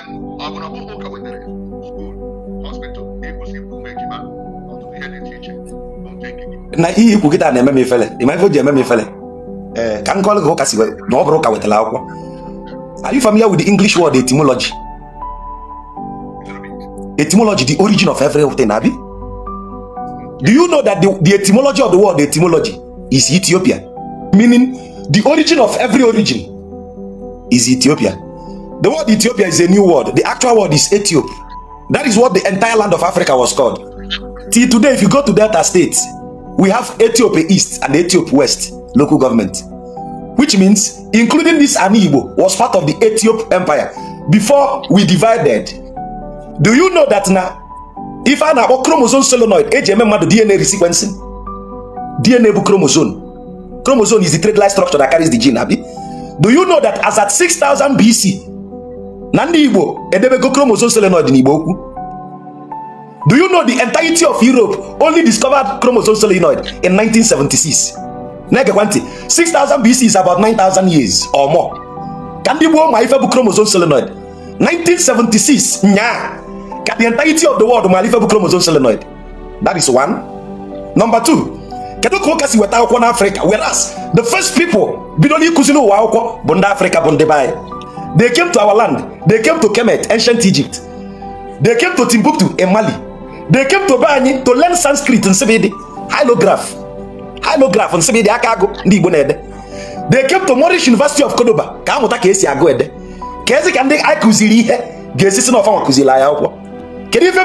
school, um, hospital, Na ihe ikwu kita na na-eme m ifele ịma ife o ji eme m ifele ee ka nkọlụ gị ụka si na ọ bụrụ ụka wetara akwụkwọ are you familiar with the English word etymology etymology the origin of everything abi do you know that the, the etymology of the word etymology is Ethiopia meaning the origin of every origin is Ethiopia the word Ethiopia is a new word. The actual word is Ethiop. That is what the entire land of Africa was called. Till today, if you go to Delta State, we have Ethiopia East and Ethiopia West local government. Which means, including this Anibo was part of the Ethiopia Empire before we divided. Do you know that now? If I now chromosome solenoid, HMM DNA resequencing. DNA chromosome. Chromosome is the trade line structure that carries the gene, Abi. Do you know that as at 6000 BC, na ndị igbo edebego chromosome solenoid n'igbo okwu do you know the entirety of europe only discovered chromosome solenoid in 1976 na-egekwa ntị 6000 bc is about 9000 years or more ka ndị gboo ma ife bụ chromosome solenoid 1976 nyaa ka the entirety of the world ma ife bụ chromosome solenoid that is one number two kedu ka ụka si weta akwụkwọ n'afrịka whereas the first people bido n'ịkụzi n'ụwa akwụkwọ bụ ndị afrịka bụ ndị be They came to our land. They came to Kemet, ancient Egypt. They came to Timbuktu in Mali. They came to Bani to learn Sanskrit and Sibidi. Hylograph. Hylograph and Sibidi Akago ndị Igbo They came to Moorish University of Cordoba ka a mụta ka esi agụ ede. Ka ezi ka ndị anyị kụziri ihe ga-esi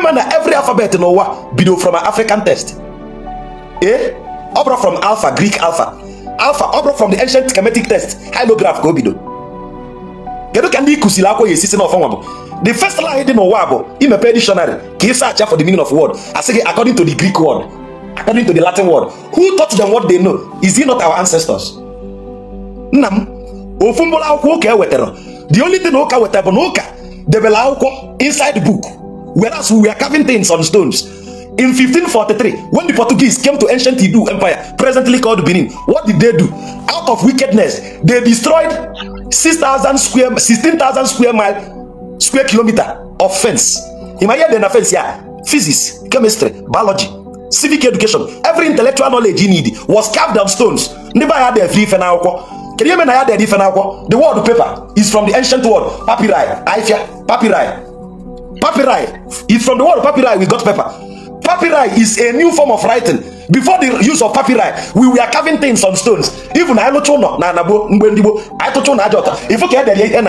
na every alphabet n'ụwa bido from an African test. Eh? ọ bụrụ from alpha Greek alpha. Alpha ọ from the ancient Kemetic test Hylograph go bido. kedu ka ndị ịkụsiri akwa ya esisi n'ọfọnwa bụ the first line dị n'ụwa bụ imepe dictionary ka ịsa acha for the meaning of word asị gị according to the greek word according to the latin word who taught them what they know is he not our ancestors nna m ofu mkpụrụ akwụkwọ ụka ewetara the only thing ụka wetara bụ na ụka debere akwụkwọ inside book whereas we are carving things on stones in 1543 when the portuguese came to ancient Hindu empire presently called benin what did they do out of wickedness they destroyed six thousand square sixteen thousand square mile square kilometer of fence in my head dem na fence yeah physics chemistry biology civic education every intellectual knowledge you need was carved on stones ndị be anya dere ife n'akwụkwọ kedu ihe na ya dere ife n'akwụkwọ the word paper is from the ancient word papyri aifia papyri papyri is from the word papyri we got paper papyri is a new form of writing before the use of papyri we were carving things on stones even anyị lụcha ụlọ na anagbo mgbe ndị gboo anyị tụcha ụlọ aja ọta ifu ka edere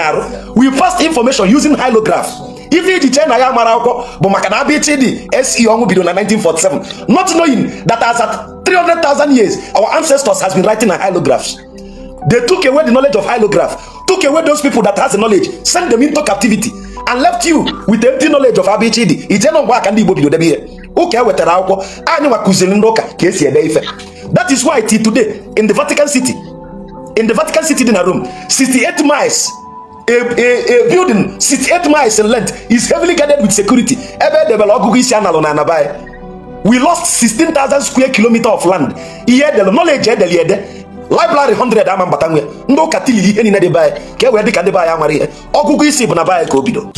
we passed information using hieroglyph ife iji chee na ya mara akwụkwọ bụ maka na abịa chidi se 1947 not knowing that as at 300,000 years our ancestors has been writing on hieroglyphs they took away the knowledge of hieroglyph took away those people that has the knowledge sent them into captivity and left you with empty knowledge of abịa chidi ije na ngwa aka ndị be bido debe ihe ụka e wetara akwụkwọ anyị nwa ndị ụka ka esi ede ife that is why till today in the Vatican City in the Vatican City dị na Rome 68 miles a, a, a building 68 miles in length is heavily guarded with security ebe edebere ọgụgụ isi a na anabai e. we lost 16,000 square kilometer of land ihe edelu knowledge edeli ede library 100 ama mbata nwe ndị ụka tilili ihe niile dị be ka e wee dị ka ndị be amara ihe ọgụgụ isi bụ na be ka o bido